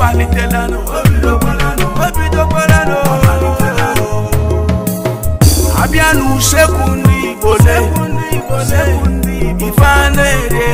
falite lánàá. Obi tó pẹ́ lánàá. Obi tó pẹ́ lánàá. Falite lánàá. Abíánú ṣẹ́kùn ní ìbòlẹ̀. Ṣẹ́kùn ní ìbòlẹ̀. Ìfáànà èrè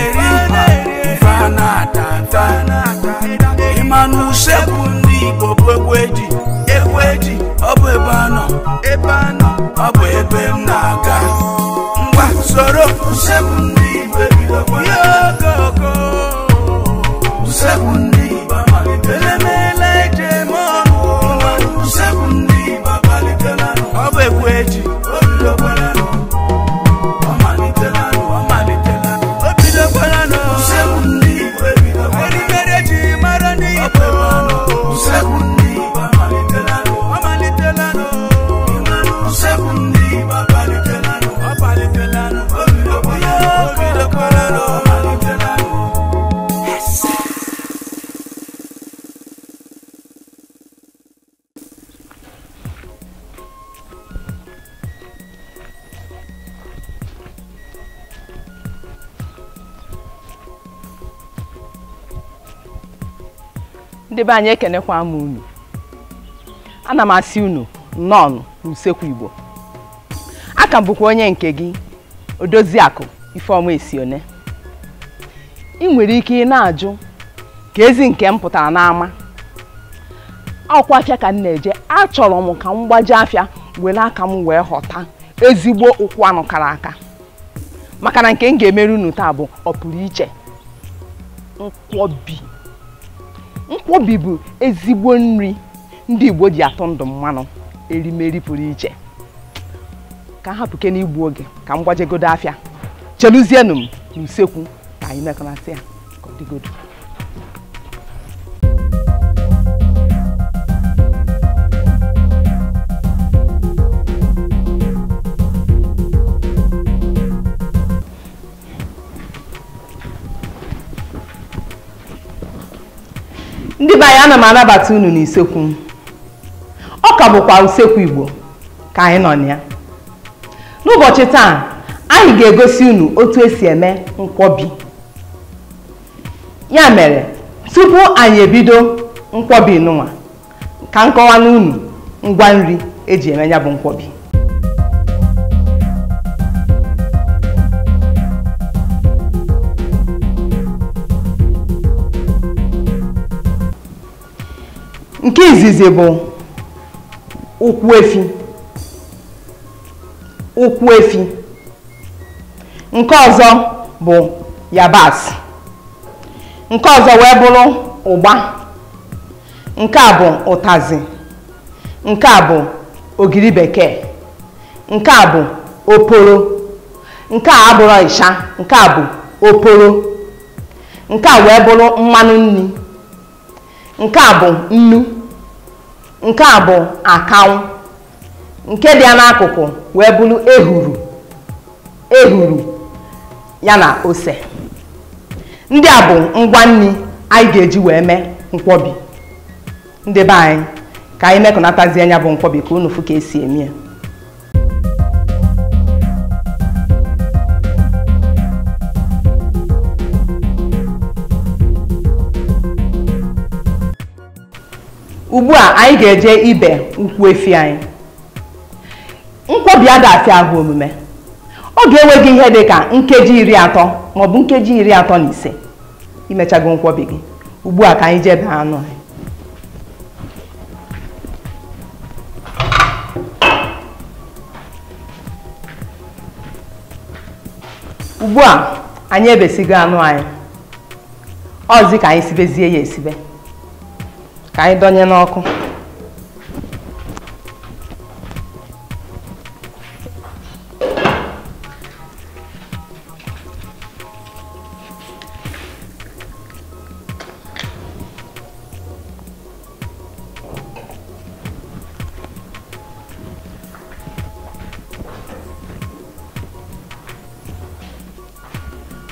ebe anyị ekenekwa m unu ana m asị unu nnọọ n'usekwu igbo aka bụkwa onye nke gị odoziakụ ifeọma esione ị nwere ike ị na-ajụ ka ezi nke m pụtara n'ama ọkwa afịa ka m na-eje achọrọ m ka m gbaji afịa were aka m wee ghọta ezigbo ụkwụ anụ kara aka maka na nke m ga-emere unu taa bụ ọ pụrụ iche nkwọbi nkwobi bụ ezigbo nri ndị Igbo ji atụ ndụ mmanụ erimeri pụrụ iche ka m hapụke n'igbu oge ka m gwajegodo afịa cheluzienụ m n'usekwu ka anyị mekọnasị ya ka ọ dịgodo ndị anyị ana m anabata unu n'usekwu ọ ka bụkwa usekwu igbo ka anyị nọ na ya n'ụbọchị taa anyị ga-egosi unu otu esi eme nkwobi ya mere tupu anyị ebido nkwobi n'ụwa ka nkọwa n'unu ngwa nri eji eme ya bụ nkwobi nke izizi bụ ụkwụ efi ụkwụ efi nke ọzọ bụ yabasị nke ọzọ wee bụrụ ụgba nke a bụ ụtazị nke a bụ ogiri bekee nke a bụ oporo nke a abụrụ ịsha nke a bụ oporo nke a wee bụrụ mmanụ nri nke a bụ nnu nke a bụ akanwụ nke dị ya n'akụkụ wee bụrụ ehuru ehuru ya na ose ndị a bụ ngwa nri anyị ga-eji wee mee mkpọbi ndị be anyị ka anyị mekọnatazie anya bụ nkwobi ka unu fụ ka esi eme ya ugbu a anyị ga-eje ibe nkwu efi anyị nkwobi adafi ahụ omume ọ ga-enweghị ihe dị ka nkeji iri atọ maọbụ nkeji iri atọ na ise imechago nkwobi gị ugbu a ka anyị jebe anụ anyị ugbu a anyị ebesigo anụ anyị ọzi ka anyị sibezie ya esibe Cai, Dona Enoco.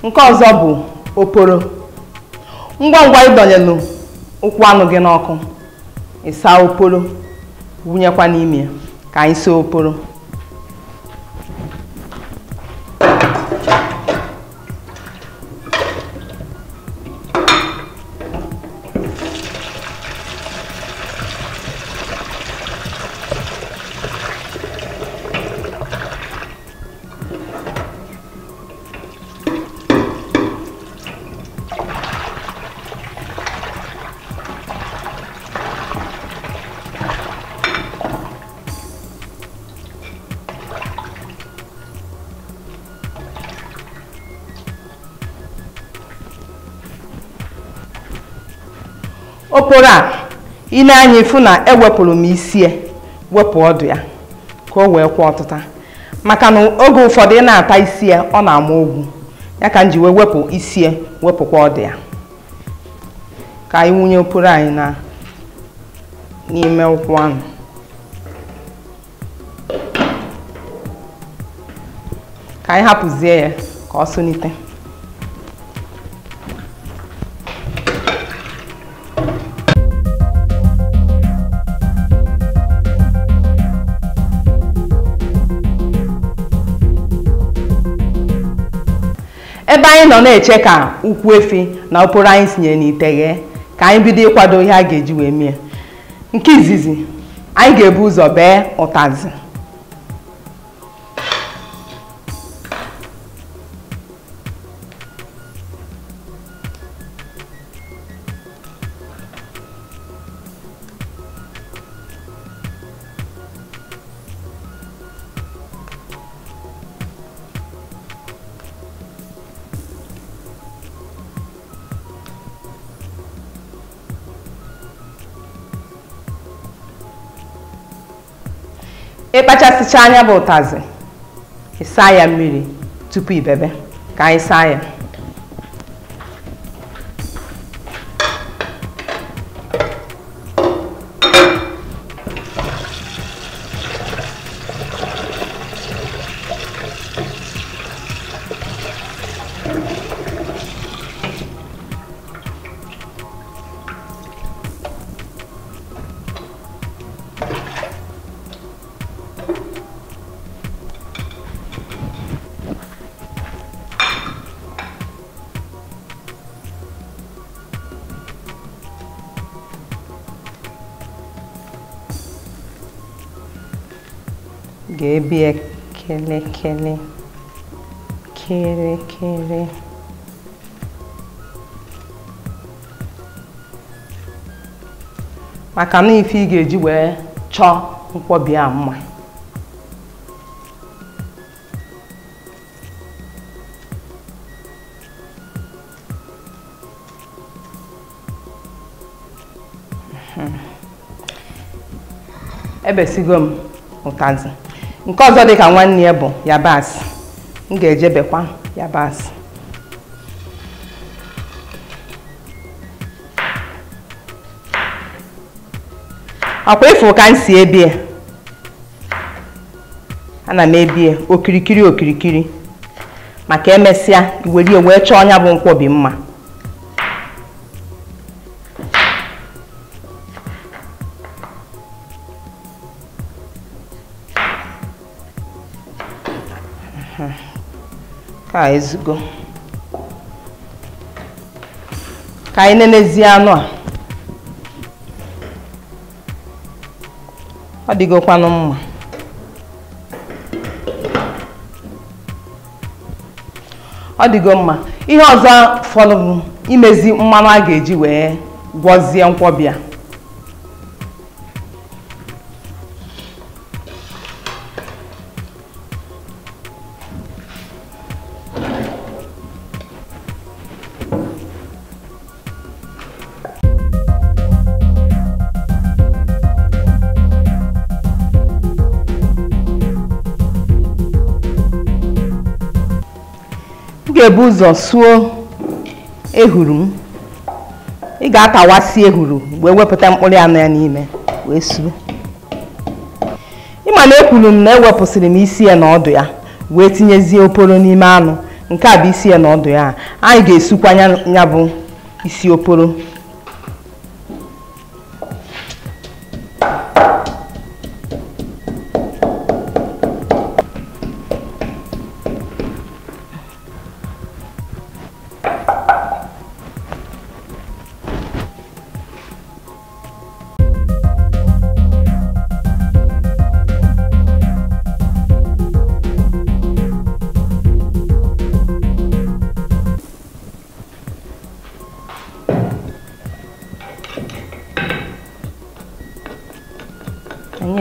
Um causa bu, o poro. Um guanguai, Dona Enoco. ụkwụ anụ gị n'ọkụ ịsa oporo wụnyekwa n'ime ka anyị saa oporo okpokoro a ị anya ifu na ewepụrụ m isi ya e, wepụ ọdụ ya ka o wee kwụ ọtụta maka na oge ụfọdụ ị na-ata isi ya e, ọ na-ama ogwu ya ka m ji wee wepụ isi ya e, wepụkwa ọdụ ya ka anyị wunye okporo anyị na n'ime ụkwụ ahụ ka anyị hapụzie ya ka ọ ebe anyị nọ na-eche ka ukwu efi na ụkpụrụ anyị sinye n'ite ghe ka anyị bido ịkwado ihe a ga-eji wee mie nke izizi anyị ga-ebu ụzọ bee ụtazị sịcha anya bụ ụtazị ịsa ya mmiri tupu ibebe ka anyị saa ya ga-ebi ya kelekele kirikiri maka na ife ị ga-eji wee chọọ nkwọbi a mma ebesigo m ụtazị nke ọzọ dị ka nwanne ya bụ yabasị m ga-ejebekwa yabasị ọkwa ịfụ ka m si ebie ana m ebie okirikiri okirikiri maka emesịa iwerie wee chọọ ọnya bụ nkwobi mma ka ezugo ka anyị nenezie anụ a ọ dịgokwanụ mma ọ dịgo mma ihe ọzọ fọdụrụ imezi mmanụ a ga-eji wee gwọzie nkwọbịa Chike ụzọ suo ehuru m ị ga atawasi ehuru wee wepụta mkpụrụ anụ ya n'ime wee suo ịma na ekwuru m na ewepụsịrị m isi ya na ọdụ ya wee tinyezie oporo n'ime anụ nke a bụ isi ya na ọdụ ya anyị ga-esukwa ya bụ isi oporo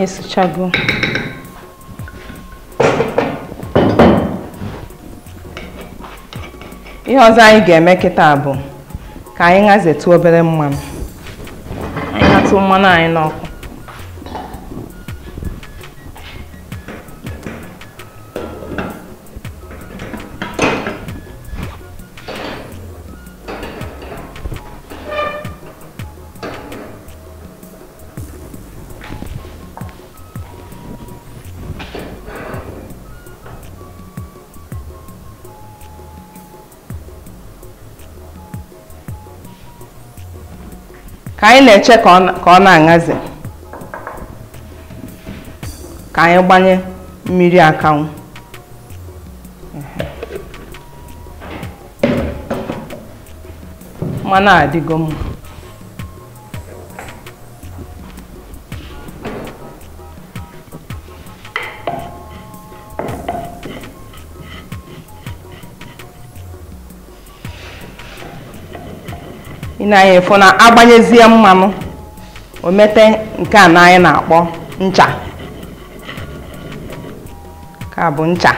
esuchago ihe ọzọ anyị ga-eme kịta bụ ka anyị hazetu obere mmanụ anyị atụ mmanụ anyị n'ọkụ ka anyị na-eche ka ọ na-aṅazi ka anyị gbanye mmiri akanwụ mmanụ adịgo mma ị na na agbanyezie mmanụ o nke a na anyị na-akpọ ncha ka bụ ncha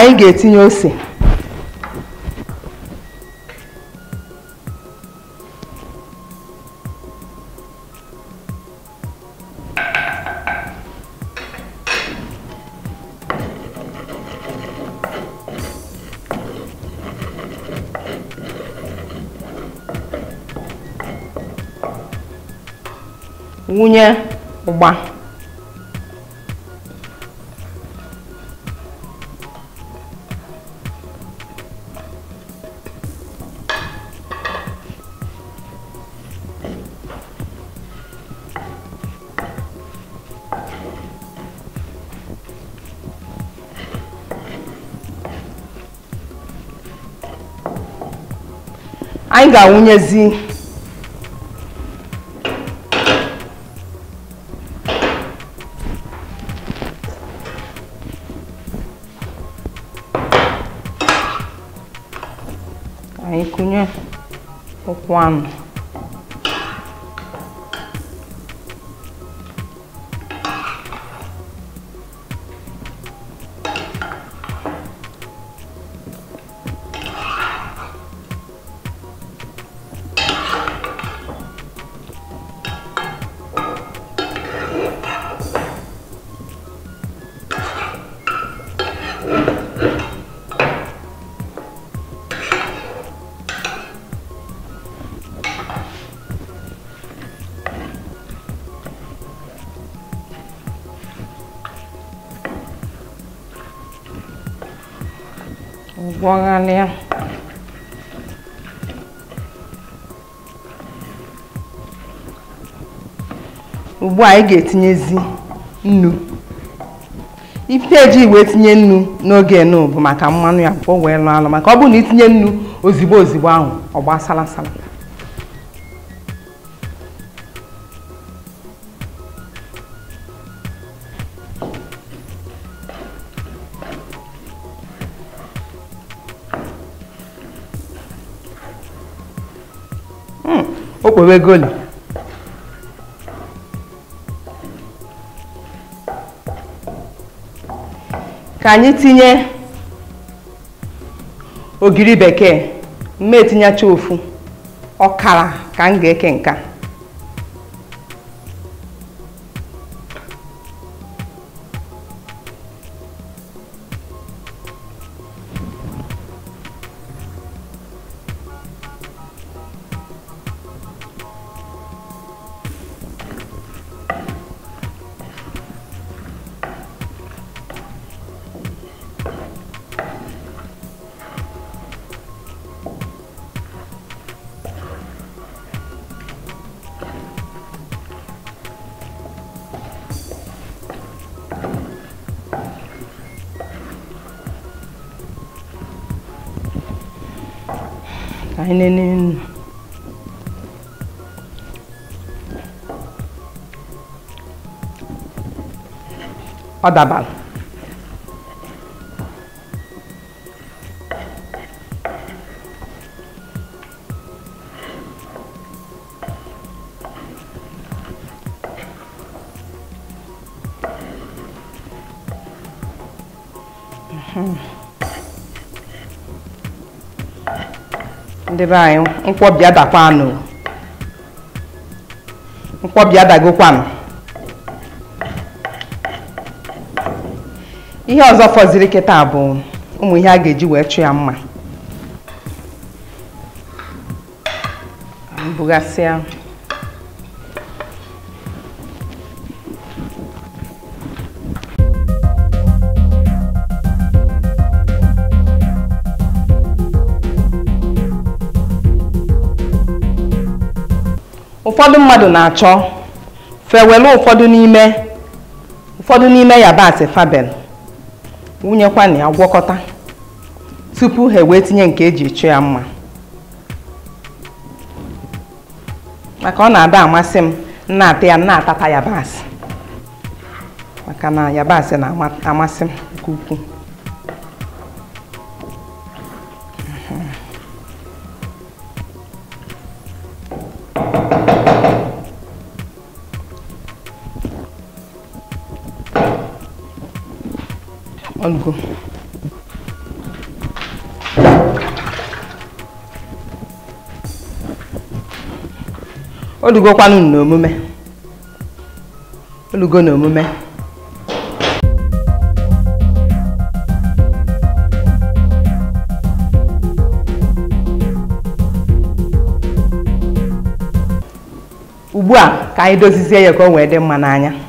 anyị ga-etinye ose nwunye ụgba anyị ga-awụnyezi aí kụnye o anụ gwọghalịa ugbu a anyị ga-etinyezi nnu ife eji wee tinye nnu n'oge nnu bụ maka mmanụ ya o wee lụ alụ maka ọ bụrụ na itinye nnu ozigbo ozigbo ahụ ọ gbasara sala hmm, okpowegoli ka anyị tinye ogiri bekee mma etinyecha ofu ọkara ka m ga-eke nka einen in. Adaban. Mm-hmm. ndị be anyị nkwọbi adakwanụ nkwọbi adagokwanụ ihe ọzọ fọziri kịta bụ ụmụ ihe a ga-eji wee chụ ya mma bugasịa ụfọdụ mmadụ na-achọ fewelu ụfọdụ n'ime ụfọdụ n'ime yabasị fabel wunyekwa na ya gwọkọta tupu ha wee tinye nke eji chụ ya mma maka ọ na-ada amasị m na-ata ya na-atata yabasị maka na yabasị na-amasị m nke ukwuu ăn cơm olugokwanụ n'omume olugo n'omume ugbu a ka anyị dozizie ya ka o wee dị mma n'anya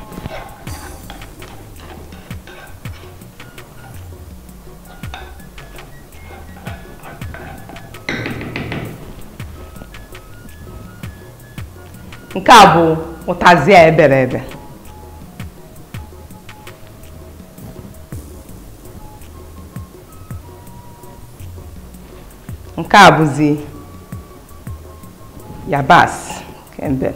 nke a bụ ụtazị a ebere ebe nke a bụzi yabasị kembe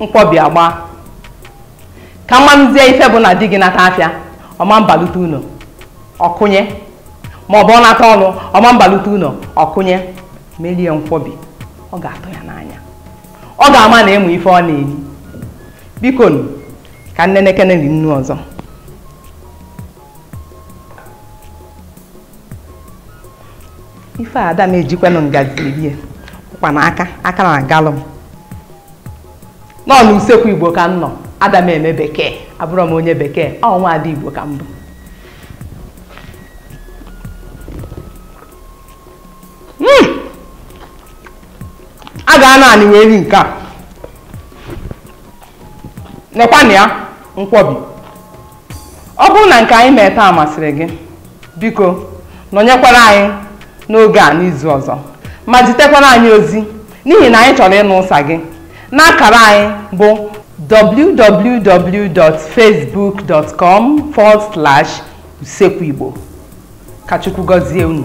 mkpọbi agba ka mmamzie ife bụ na di gị nata afịa ọma mbalute ụlọ ọkụnye ma ọ bụ ọ nata ọnụ ọma mbalute ụlọ ọkụnye merie nkwobi ọ ga-atụ ya n'anya ọ ga-ama na ịmụ ife ọ na-eri biko ka ka nnenekene ri nnu ọzọ ife ada na-ejikwanụ ngazi rie ụkwa na aka aka na agalụ m nọ n'usekwu igbo ka m nọ ada m eme bekee abụrọ m onye bekee ọ nwa igbo ka mbụ. bụ hmm! a ga-anọ anị wee ri nke a nekwanụ ya nkwọbi ọ bụrụ na nke anyị mee taa masịrị gị biko nọnyekwara anyị n'oge a n'izu ọzọ ma jitekwara anyị ozi n'ihi na anyị chọrọ ịnụ ụsa gị n'akara anyị bụ www.facebook.com forward slash usekwu igbo ka Chukwu gọzie unu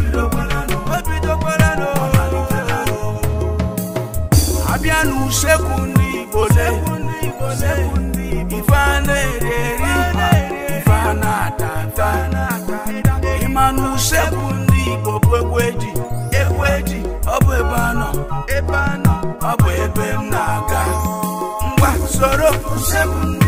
usekwu ndị igbo ife a na-eri eri ife a na-ata ịmanụ usekwu ndị igbo bụ egwe ji ọ bụ ebe anọ ebe anọ ọ bụ ebe m na-aga ngwa soro usekwu